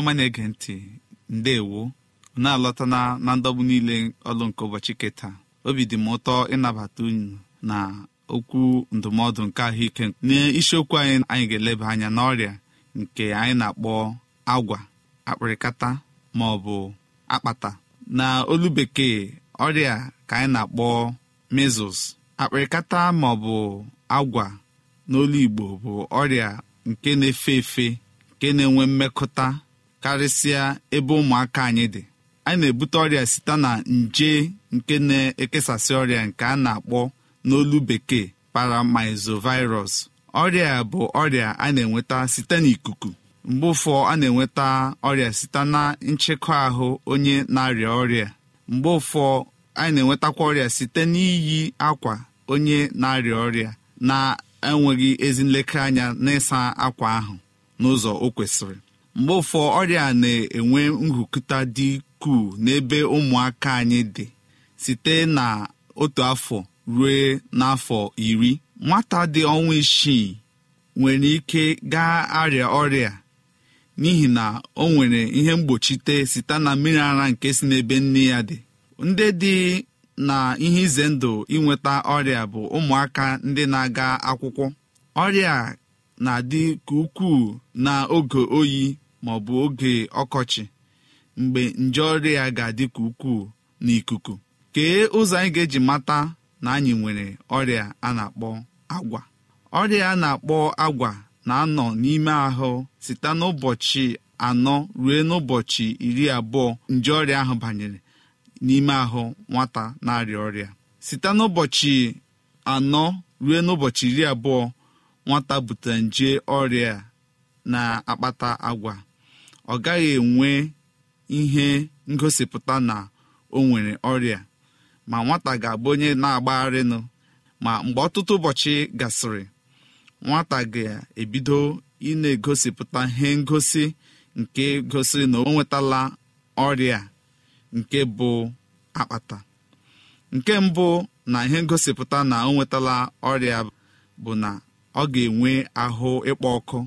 ọma na-ege ntị ndewo na-alọta na ndọgbu niile ọlụ nke ụbọchị keta obi dị m ụtọ ịnabata unu na okwu ndụmọdụ nke ahụike n'isiokwu anyị anyị ga-eleba anya n'ọrịa nke anyị na-akpọ agwa akpịrịkata ma ọ bụ akpata na olu bekee ọrịa ka anyị na-akpọ mezus akpịrịkata ma ọ bụ agwa n'olu igbo bụ ọrịa nke na-efe efe nke na-enwe mmekọta karịsịa ebe ụmụaka anyị dị anyị na-ebute ọrịa site na nje nke na-ekesasị ọrịa nke a na-akpọ n'olu bekee paramizovirus ọrịa bụ ọrịa a na-enweta site n'ikuku mgbe ụfọ a na-enweta ọrịa site na nchekwa ahụ onye na-arịa ọrịa mgbe ụfọ anyị na-enwetakwa ọrịa site n'iyi akwa onye na-arịa ọrịa na-enweghị ezi nlekere anya n'ịsa akwa ahụ n'ụzọ o kwesịrị mgbe ụfọ ọrịa na-enwe nhụkụta dị ukwuu n'ebe ụmụaka anyị dị site na otu afọ ruo n'afọ iri nwata dị ọnwa isii nwere ike gaa arịa ọrịa n'ihi na o nwere ihe mgbochite site na mmiri ara nke si n'ebe nne ya dị ndị dị na ihe ize ndụ inweta ọrịa bụ ụmụaka ndị na-aga akwụkwọ ọrịa na-adị ka ukwuu n'oge oyi maọbụ oge ọkọchị mgbe nje ọrịa ga-adị ka ukwuu n'ikuku kee ụzọ anyị ga-eji mata na anyị nwere ọrịa a na-akpọ agwa ọrịa a na-akpọ agwa na-anọ n'ime ahụ site n'ụbọchị anọ ruo n'ụbọchị iri abụọ nje ọrịa ahụ banyere n'ime ahụ nwata na-arịa ọrịa site n'ụbọchị anọ ruo n'ụbọchị iri abụọ nwata bute nje ọrịa na-akpata agwa ọ gaghị enwe ihe ngosipụta na o nwere ọrịa ma nwata ga-abụ onye na-agbagharịnụ ma mgbe ọtụtụ ụbọchị gasịrị nwata ga-ebido ị na-egosipụta ihe ngosi nke gosiri na o nwetala ọrịa nke bụ akpata nke mbụ na ihe ngosipụta na o nwetala ọrịa bụ na ọ ga-enwe ahụ ịkpọ ọkụ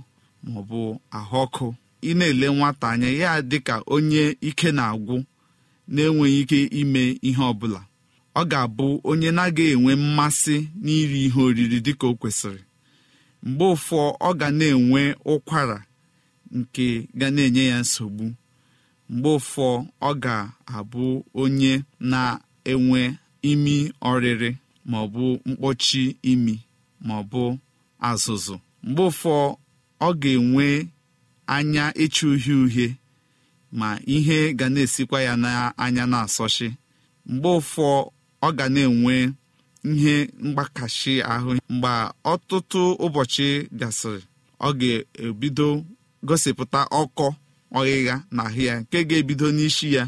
maọbụ ahụ ọkụ ị na-ele nwata anya ya dịka onye ike na-agwụ na-enweghị ike ime ihe ọbụla ọ ga-abụ onye na-agaghị enwe mmasị n'iri ihe oriri dịka o kwesịrị mgbe ụfọ ọ ga na-enwe ụkwara nke ga na-enye ya nsogbu mgbe ụfọ ọ ga-abụ onye na-enwe imi ọrịrị maọbụ mkpọchi imi maọbụ azụzụ mgbe ụfọ ọ ga-enwe anya ịcha uhie uhie ma ihe ga na-esikwa ya n'anya na-asọchi mgbe ụfọ ọ ga na-enwe ihe mgbakashi ahụ mgbe ọtụtụ ụbọchị gasịrị ọ ga-ebido gosipụta ọkọ ọghịgha na ahụ ya nke ga-ebido n'isi ya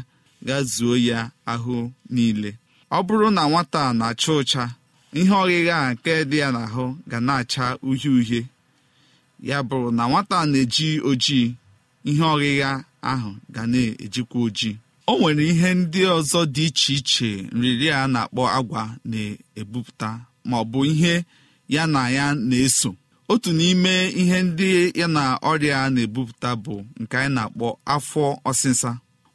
ga zuo ya ahụ niile ọ bụrụ na nwata na-acha ụcha ihe ọghịgha a nke dị ya n'ahụ ga na-acha uhie uhie ya bụrụ na nwata na-eji ojii ihe ọghịgha ahụ ga na-ejikwa ojii o nwere ihe ndị ọzọ dị iche iche nrịrị a na-akpọ agwa na-ebupụta ma ọ bụ ihe ya na ya na-eso otu n'ime ihe ndị ya na ọrịa na-ebupụta bụ nke anyị na-akpọ afọ ọsịsa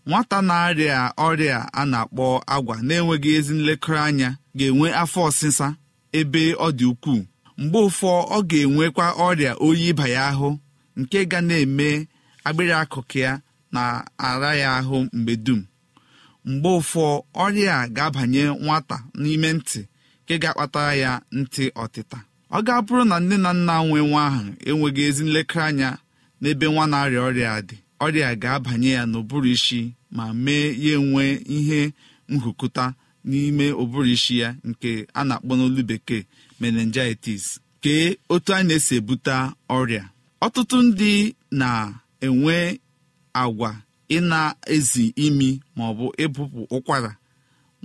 nwata na-arịa ọrịa a na-akpọ agwa na-enweghị ezi nlekọta anya ga-enwe afọ ọsịsa ebe ọ dị ukwuu mgbe ụfọ ọ ga-enwekwa ọrịa oyi ịba ya ahụ nke ga na-eme agbịrị akụkụ ya na-ara ya ahụ mgbe dum mgbe ụfọ ọrịa a ga-abanye nwata n'ime ntị nke ga-akpatara ya ntị ọtịta ọ ga-abụrụ na nne na nna nwe nwa ahụ enweghị ezi nlekọta anya n'ebe nwa na-arịa ọrịa dị ọrịa ga-abanye ya n'ụbụrụ isi ma mee ya nwee ihe nhụkụta n'ime ụbụrụ isi ya nke a na-akpọ n'olu bekee meningitis kee otu a na-esi ebute ọrịa ọtụtụ ndị na-enwe agwa ị na-ezi imi maọbụ ịbụpụ ụkwara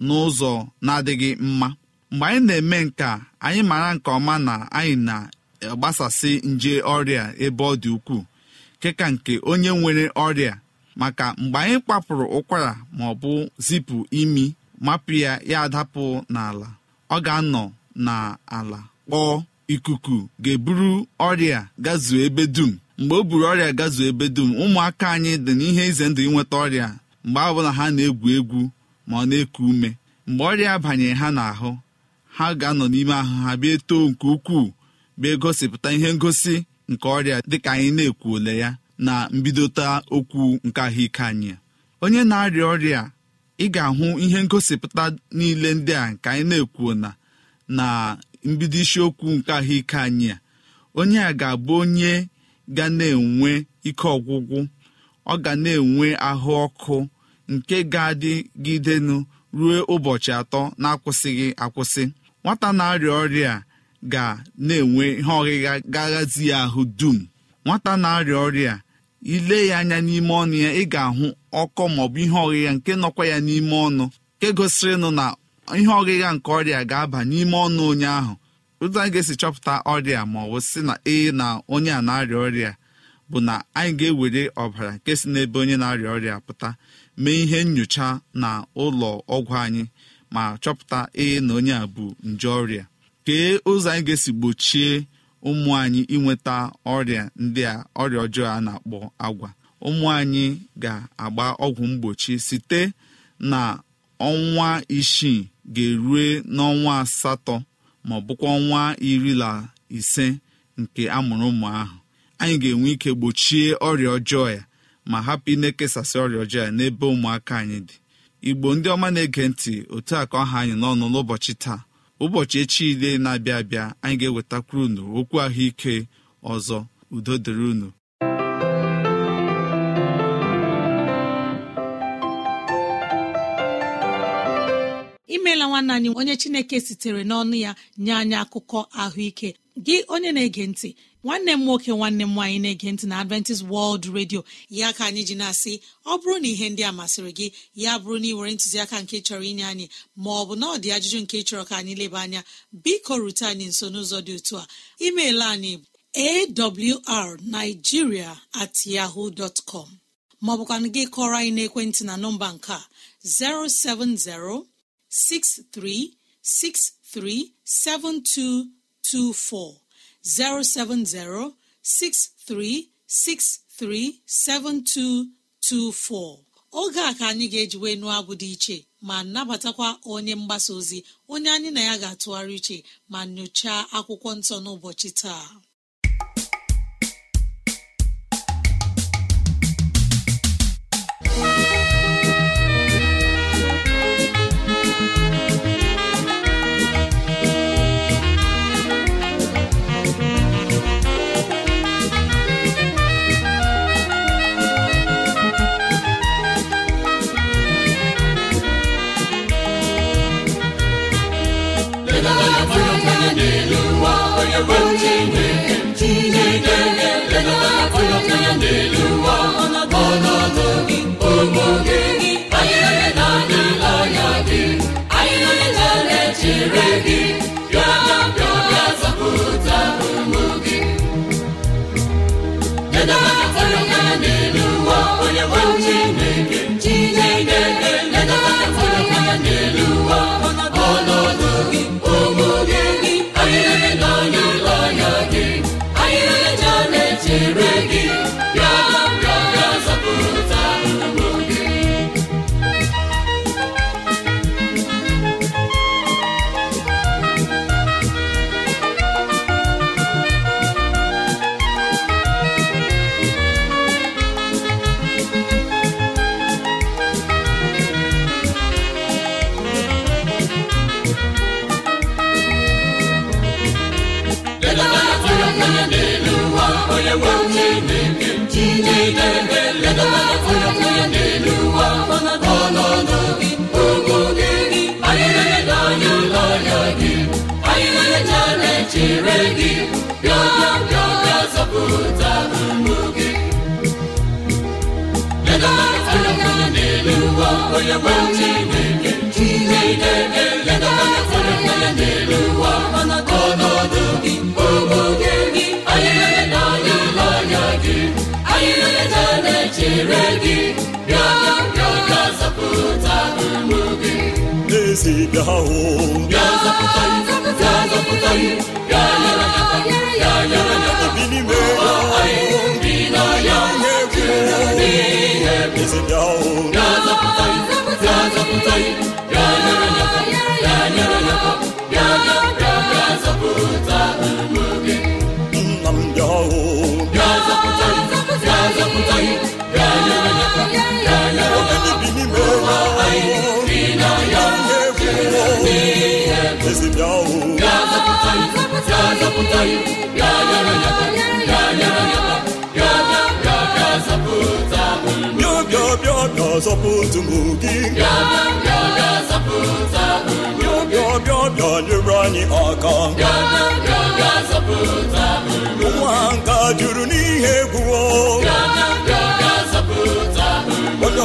n'ụzọ na-adịghị mma mgbe anyị na-eme nke anyị mara nke ọma na anyị na-agbasasị nje ọrịa ebe ọ dị ukwuu keka nke onye nwere ọrịa maka mgbe anyị kpapụrụ ụkwara ma ọ bụ zipụ imi mapụ ya ya adapụ n'ala ọ ga-anọ n'ala kpọọ ikuku ga-eburu ọrịa gazuo ebe dum mgbe o buru ọrịa gazuo ebe dum ụmụaka anyị dị n'ihe ize ndụ inweta ọrịa mgbe ọbụla ha na-egwu egwu ma ọ na-eku ume mgbe ọrịa banyere ha n'ahụ ha ga-anọ n'ime ahụ ha bịa too nke ukwuu bịa gosipụta ihe ngosi nke ọrịa dịka anyị na-ekwuola ya na mbidota okwu nke ahụike anyị onye na-arịa ọrịa ị ga-ahụ ihe ngosipụta niile ndị a nke anyị na ekwu na na mbido isiokwu nke ahụike anyị a onye a ga-abụ onye ga na-enwe ike ọgwụgwụ ọ ga na-enwe ahụ ọkụ nke ga-adịgidenụ ruo ụbọchị atọ na-akwụsịghị akwụsị nwata na-arịa ọrịa ga na-enwe ihe ọghịgha gaghazi ya ahụ dum nwata na-arịa ọrịa ile ya anya n'ime ọnụ ya ị ga-ahụ ọkọ maọbụ ihe ọghịgha nke nọkwa ya n'ime ọnụ nke gosirinụ na ihe ọghịgha nke ọrịa ga-aba n'ime ọnụ onye ahụ ụzọ anyị ga-esi chọpụta ọrịa ma ọ bụ sị na ee na onye a na-arịa ọrịa bụ na anyị ga-ewere ọbara nke si n'ebe onye na-arịa ọrịa pụta mee ihe nyocha na ụlọ ọgwụ anyị ma chọpụta ee na onye a bụ nje ọrịa kee ụzọ anyị ga-esi gbochie ụmụ anyị inweta ọrịa ndị a ọrịa ọjọọ a na-akpọ agwa ụmụ anyị ga-agba ọgwụ mgbochi site na ọnwa isii ga-erue n'ọnwa asatọ ma ọ bụkwa ọnwa iri na ise nke amụrụ ụmụ ahụ anyị ga-enwe ike gbochie ọrịa ọjọọ ya ma hapụ ịna-ekesasị ọrịa ọjọọ ya n'ebe ụmụaka anyị dị igbo ndị ọma na-ege ntị otu a ka ọha anyị n'ọnụ n'ụbọchị taa ụbọchị echi ile na-abịa abịa anyị ga-ewetakwuru unu okwu ahụike ọzọ udo dịrị unu imeela nwanne anyị onye chineke sitere n'ọnụ ya nye anyị akụkọ ahụike gị onye na-ege ntị nwanne m nwoke nwanne m nwaanyị na-ege ntị na adventist world radio ya ka anyị ji na-asị ọ bụrụ na ihe ndị a masịrị gị ya bụrụ na ị were ntụziaka nke chọrọ inye anyị ma ọ bụ na ọ dị ajụjụ nke chọrọ ka anyị leba anya biko rute anyị nso n'ụzọ dị otu a email anyị awrnigeria at yahoo dọtcom maọbụkwa gị kọrọ anyị n'ekwentị na nọmba nke a 070 6363 72 224 oge a ka anyị ga-ejiwe nụọ abụ dị iche ma nabatakwa onye mgbasa ozi onye anyị na ya ga-atụgharị iche ma nyochaa akwụkwọ nsọ n'ụbọchị taa dilinra ụọrụ araebua e itahụrata deata aeaea aaaa zaa zọpụta ụmụ gị bịa bịa anyị aka nwa nka juru n'ihe egwuo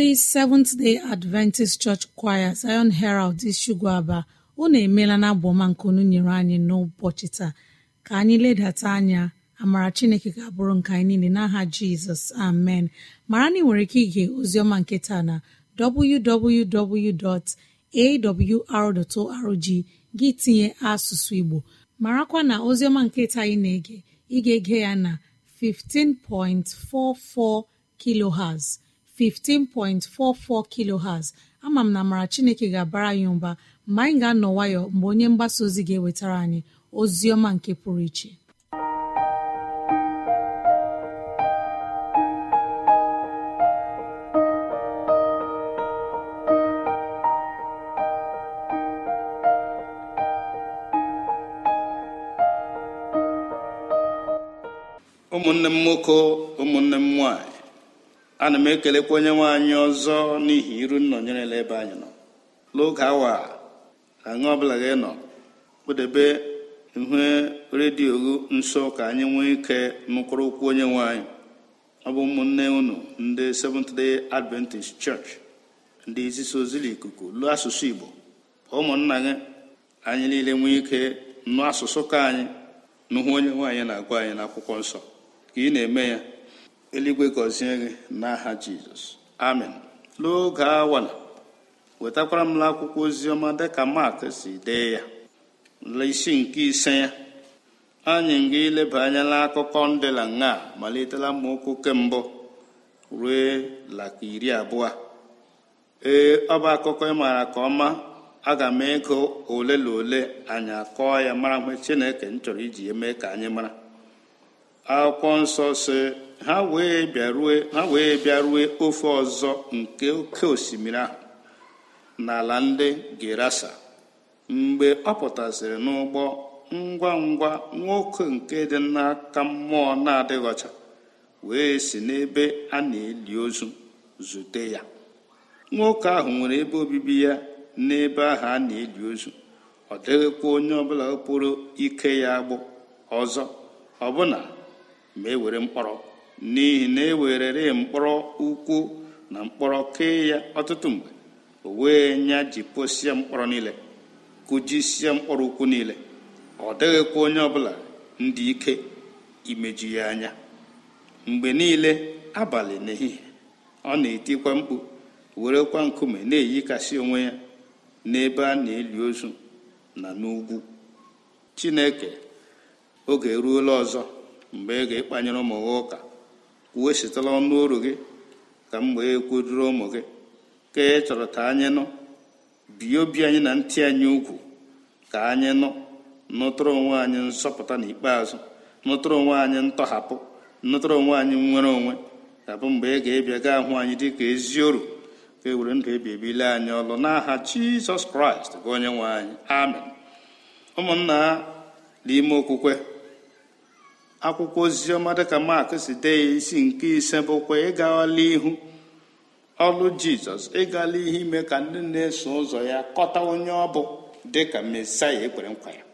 ndị seventh day adventist church choir zion herald ishugu aba unu emeela na abụọma nke unu nyere anyị n'ụbọchị taa ka anyị ledata anya amara chineke ga-abụrụ nke anyị niile n'aha jizọs amen mara na ị nwere ike ige oziọma nke taa na www.awr.org gị tinye asụsụ igbo marakwa na oziọma nke taa anyị na-ege ịga ege ya na 15.44 kiloherz 15.44 kilohertz ama m na mara chineke ga-abara anyị mba mgbe anyị ga-anọ nwayọ mgbe onye mgbasa ozi ga-ewetara anyị ozi ọma nke pụrụ iche ụmụnne m nwoke ụmụnne m nwanyị ana m ekelekwa onye nwe anyị ọzọ n'ihi iru nnọnyerela ebe anyị nọ n'oge awa aṅụ ọbụla gị nọ kpụdebe ihe redio nso ka anyị nwee ike nụkwụrụ okwu onye nwe anyị ọ bụ ụmụnne unu ndị Seventh Day Adventist Church ndị izisa ozi ikuku lụọ asụsụ Igbo ụmụnna gị anyị niile nwee ike nụ asụsụ ka anyị nụhụ onye nwaanyị na-agwa anyị n'akwụkwọ nsọ ka ị na-eme ya eluigwe gọzie gị n'aha jizọs amen n'oge awala wetakwara m akwụkwọ oziọma dịka mak si dee ya isi nke ise ya anyị ga ileba anya n'akụkọ ndịla la nga malitela mmaokwu kembụ ruo laka iri abụọ ee ọ bụ akụkọ ị maara ka ọma aga m ego ole na ole anyị akọọ ya mara mgbe chineke m chọrọ iji ya mee ka anyị mara akwụkwọ nsọ si ha wee bịarue ofe ọzọ nke oke osimiri ahụ n'ala ndị gerasa mgbe ọ pụtasịrị n'ụgbọ ngwa ngwa nwoke nke dị n'aka mmụọ na-adịghị ọcha wee si n'ebe a na-eli ozu zute ya nwoke ahụ nwere ebe obibi ya n'ebe ahụ a na-eli ozu ọ dịghịkwa onye ọbụla pụrụ ike ya agbụ ọzọ ọbụna ma e were mkpọrọ n'ihi na e ewerere mkpọrọ ukwu na mkpọrọ kee ya ọtụtụ mgbe o wee nya posie mkpọrọ niile sie mkpọrọ ukwu niile ọ dịghịkwa onye ọbụla ndị ike imeju ya anya mgbe niile abalị n'ehihie ọ na-etikwa mkpu werekwa nkume na-eyikasị onwe ya n'ebe a na-eli ozu na n'ugwu chineke oge eruola ọzọ mgbe ị ga-ekpanyere ụmụ ụka uwechitala ọnụ oru gị ka m wee kwururu ụmụ gị ka ị chọrọ ka anyị nọ bie obi anyị na ntị anyị ugwu ka anyị nọ nụtụrụ onwe anyị na n'ikpeazụ nụtụrụ onwe anyị ntọhapụ nụtụrụ onwe anyị nwere onwe abụ mgbe ị ga ebia ga ahụ anyị dị ka ezi oru ka e were ndụ e ebi ebile anyị ọlụ n'aha jizọs kraịst onye nwe anyị amen ụmụnna n'ime okwukwe akwụkwọ oziọma dịka mark si dee ya isi nke ise bụkwa ịgala ihu ọlụ jizọs ịgala ihe ime ka ndị na-eso ụzọ ya kọta onye ọ bụ dịka mesaya ekwere nkwa ya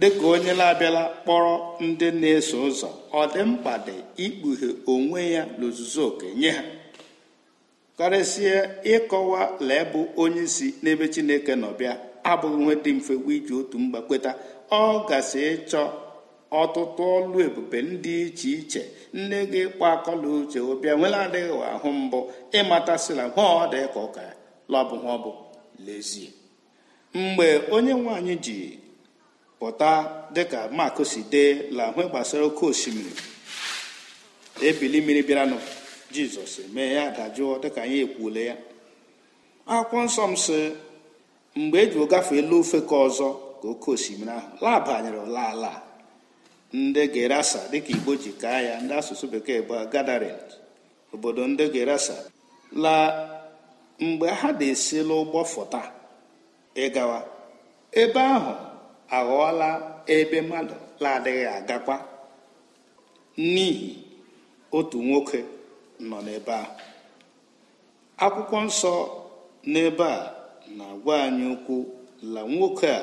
dịka onye na-abịala kpọrọ ndị na-eso ụzọ ọ dị mkpa dị ikpughe onwe ya n'ozuzu oke nye ha karịsịa ịkọwa lee bụ onye si n'ebe chineke nọbịa abụghị nwe dị mfe iji otu mgbakweta ọ gasị ịchọ ọtụtụ ọlụ ebube ndị iche iche nne gị kpa akọla uche ụbịa nwela adịghị ahụ mbụ ịmatasịla nwa ọ dị ka ụka lọbụ ha bụ lezie mgbe onye nwanyị ji pụta dịka mak si dee lahụ gbasara oke osimiri ebili mmiri bịaranụ jizọs mee ya dajụọ dịka anyị ekwule ya akwụkwọ nsọ m si mgbe e ji gafee elu ofe ka ọzọ ka oke osimiri ahụ labanyere ala ala ndị gerasa dịka igbo ji kaa ya ndị asụsụ bekee bụ gadarin obodo ndị gerasa la mgbe ha na-esi n'ụgbọ fọta ịgawa ebe ahụ aghọọla ebe mmadụ na-adịghị agakwa n'ihi otu nwoke nọ n'ebe a, akwụkwọ nsọ n'ebe a na-agwa anyị ukwu, la nwoke a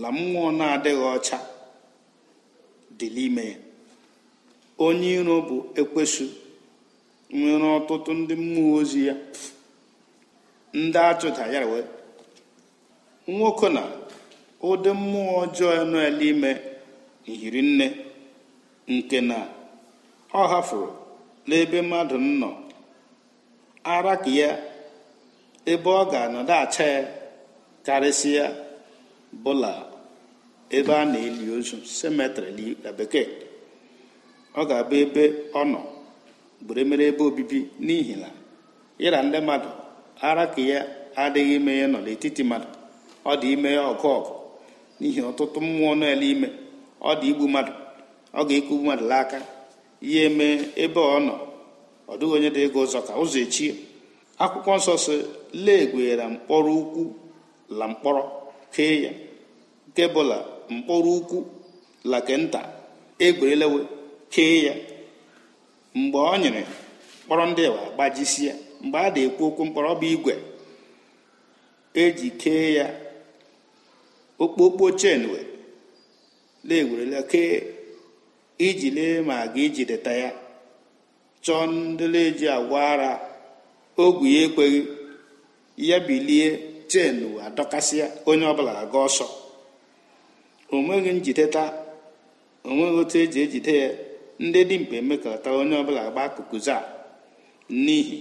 la mmụọ na-adịghị ọcha dị n'ime onye iro bụ ekwesụ nwere ọtụtụ ndị mmụọ ozi ya ndị achụda ya wee nwoke na ụdị mmụọ ọjọọ nọ ime n'ime nne nke na ọ hafụrụ n'ebe mmadụ nọ ara ka ya ebe ọ ga-anọdụ acha ya karịsịa bụla ebe a na-eli ozu semetrị na bekee ọ ga-abụ ebe ọ nọ gbere emere ebe obibi n'ihi na ịra ndị mmadụ ara ka ya adịghị ime ya nọ n'etiti mmadụ ọ dị ime ya ọgụ ọgụ n'ihi ọtụtụ mmụọ na ime ọ dị igbu mmadụ ọ ga-ekugbu mmadụ n'aka ihe eme ebe ọ nọ ọ dịghị onye dị ego ụzọ ka ụzọ echie akwụkwọ nsọ si legwera mkpọrọ ukwu la mkpọrọ kee ya nke bụla mkpọrọ ukwu lake nta egwerelewe kee ya mgbe ọ nyere mkpọrọ ndị wa gbajisi ya mgbe a na-ekwu okwu mkpọrọ bụ igwe eji kee ya okpokpo chenwe na-egwerele kee iji lee ma ga ijideta ya chọọ ndị na-eji agwa ara ogwu ya ekweghị ya bilie chen adọkasịa onye ọbụla aga ọsọ onweghị taa onweghị otu eji ejide ya ndị dimkpa emekọta onye ọbụla gba akụkụzi a n'ihi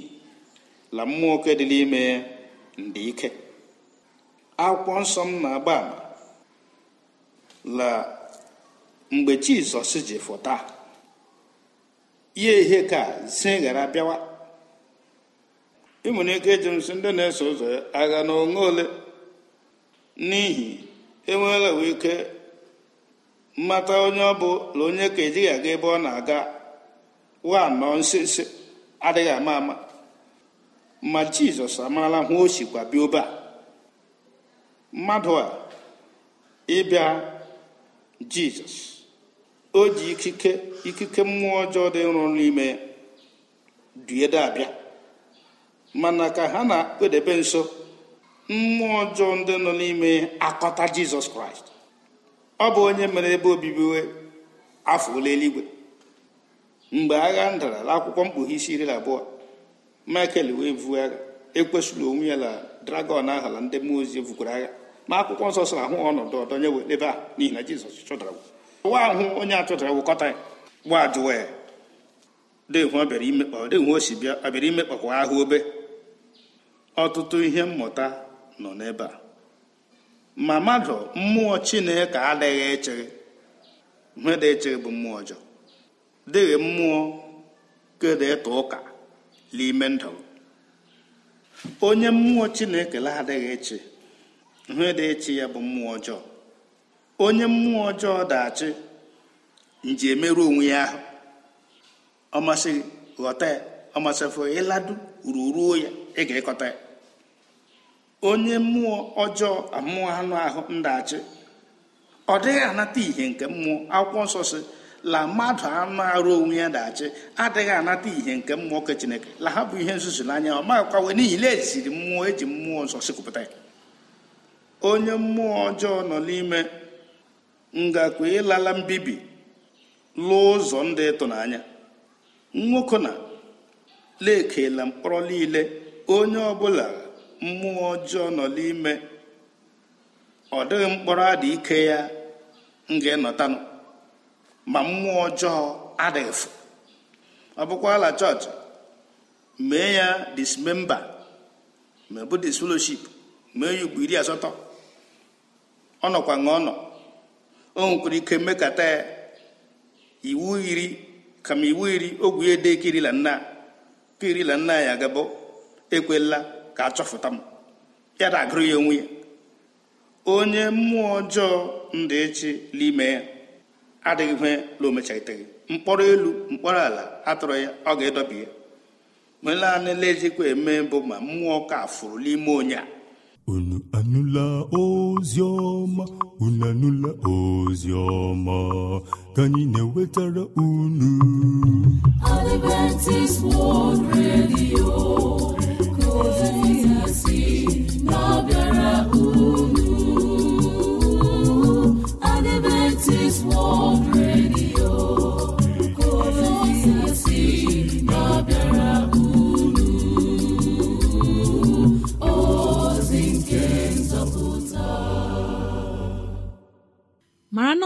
la mmụọ dị n'ime ya ndị ike akwụkwọ nsọ m na-agba ama la mgbe jizọs ji fụta ya ihe ka zi ghara bịawa ị nwere ike ndị na-eso ụzọ agha na onwe ole n'ihi enweela we ike mmata onye ọ bụ onye ka ejighị aga ebe ọ na-aga wa nọ nsense adịghị ama ama ma jizọs amarala hụ o sikwa bịa a mmadụ a ịbịa jizọs o ji ikike ikike mmụọ ọjọọ dị nrụ n'ime duede abịa mana ka ha na-edebe nso mmụọ ọjọọ ndị nọ n'ime akọta jizọs kraịst ọ bụ onye mere ebe obibi afọ ole eluigwe mgbe agha ndara akwụkwọ mkpughe isi iri na abụọ michael wee vu agha ekwesịrị onwe ya na dragọn ahụ na ndị mmụọ ozi vukwara agha ma akwụkwọ nsọ sọ ahụ ọnọdụ ọdọnye wee ebe a n'ihi na jizọs chụdara nwa ahụ onye achụdara wụkọta ya gwa ajụwa ya bịa ọ bịara imekpakwa ahụ obe ọtụtụ ihe mmụta nọ n'ebe a ma mmadụ mmụọ chineke adịghị echere ihe dị echere bụ mmụọ ọjọọ dịghị mmụọ kedu ịta ụka n'ime ndụ onye mmụọ chineke adịghị eche ihe dị ya bụ mmụọ ọjọọ onye mmụọ ọjọọ dachi nji emerụ onwe ya ahụ ọmasị ghọta ya ọmasịfụ ịladu ruruo ya ị ga ya onye mmụọ ọjọọ amụọ anụ ahụ ndachi ọ dịghị anata ihe nke mmụọ akwụkwọ nsọ si la mmadụ anụ arụ onwe ya dachi adịghị anata ihe nke mmụọ nke chineke la ha bụ ihe nzuzu n'anya ọ wee n'ihi na eziri mmụọ eji mmụọ nsọ sikụpụta ya onye mmụọ ọjọọ nọ n'ime ngakwa ịlala mbibi lụọ ụzọ ndị ịtụnanya nwoke na lekela mkpọrọ niile onye ọbụla mmụọ ọjọọ nọ n'ime ọ dịghị mkpọrọ adị ike ya m ga-enọtanụ ma mmụọ ọjọọ adịghịfụ ọ ala chọọchị mee ya dismemba ma bụ fellowship mee ya ugbo iri asatọ ọ nọkwa ọ ọnọ o nwekwara ike mekata ya iwu iri kama iwu iri ogwu edekirila nna kirila nna ya gabụ ekwela ka a m ya na-agụrụ ya onwe ya onye mmụọ ọjọọ ndị echi n'ime ya adịghịkwe la omechagiteghị mkpọrọ elu mkpọrọ ala atụrụ ya ọ ga-edọbi ya melaanị lejikwa eme bụ ma mmụọ ka fụrụ n'ime onye a unu anụla ozi ọma unu anụla ozi ọma ka anyị na-ewetara unu Adventist World Radio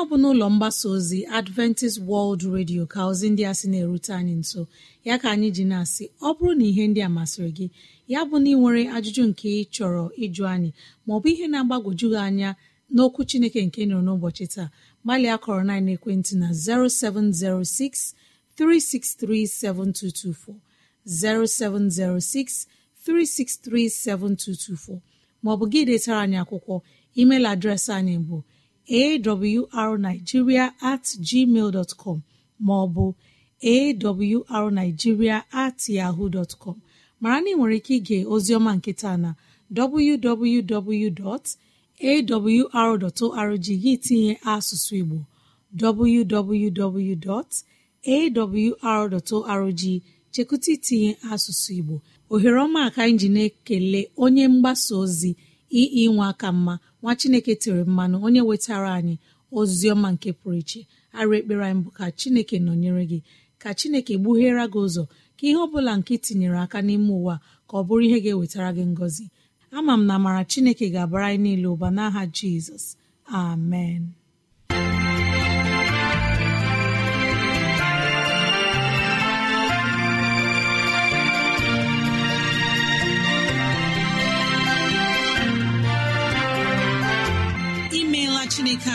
ọ bụ n'ụlọ mgbasa ozi adventist world radio ka ozi ndị a sị na-erute anyị nso ya ka anyị ji na-asị ọ bụrụ na ihe ndị a masịrị gị ya bụ na ị nwere ajụjụ nke ị chọrọ ịjụ anyị maọbụ ihe na-agbagwoju anya n'okwu chineke nke nọrọ n'ụbọchị taa gbalịa kọrọ na ekwentị na 0706 3637224 0706 3637224 maọbụ gị detara anyị akwụkwọ email adreesị anyị bụ arigiria at gmail dot com maọbụ arigiria at yahoo dot com mara na ị nwere ike ige ozioma nketa na www.awr.org gị tinye asụsụ Igbo www.awr.org chekụta itinye asụsụ Igbo ohere ọma ka anyị ekele onye mgbasa ozi ii nwa aka mma nwa chineke tere mmanụ onye wetara anyị ozi ọma nke pụrụ iche arụ ekpere anyị ka chineke nọnyere gị ka chineke gbughere gị ụzọ ka ihe ọ bụla nke tinyere aka n'ime ụwa ka ọ bụrụ ihe ga-ewetara gị ngọzi ama m na amara chineke ga-abara anyị niile ụba n'aha jizọs amen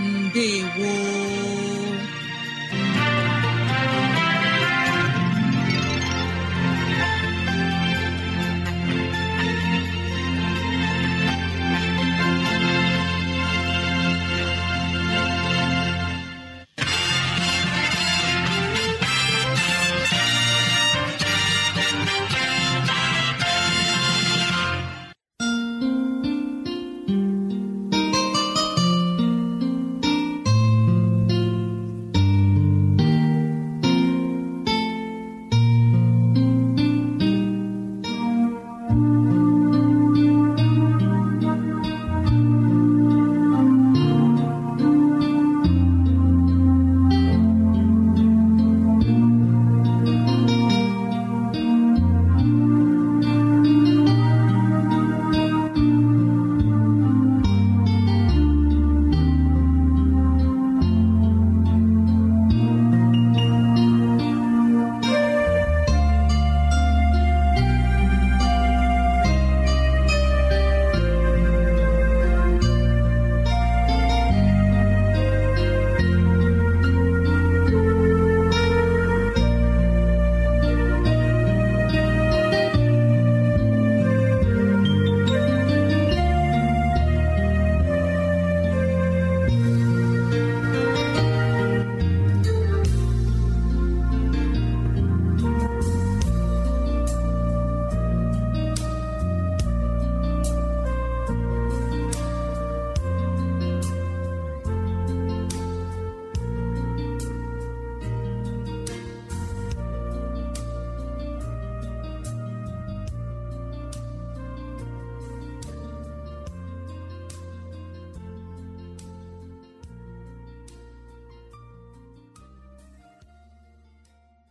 Ndewo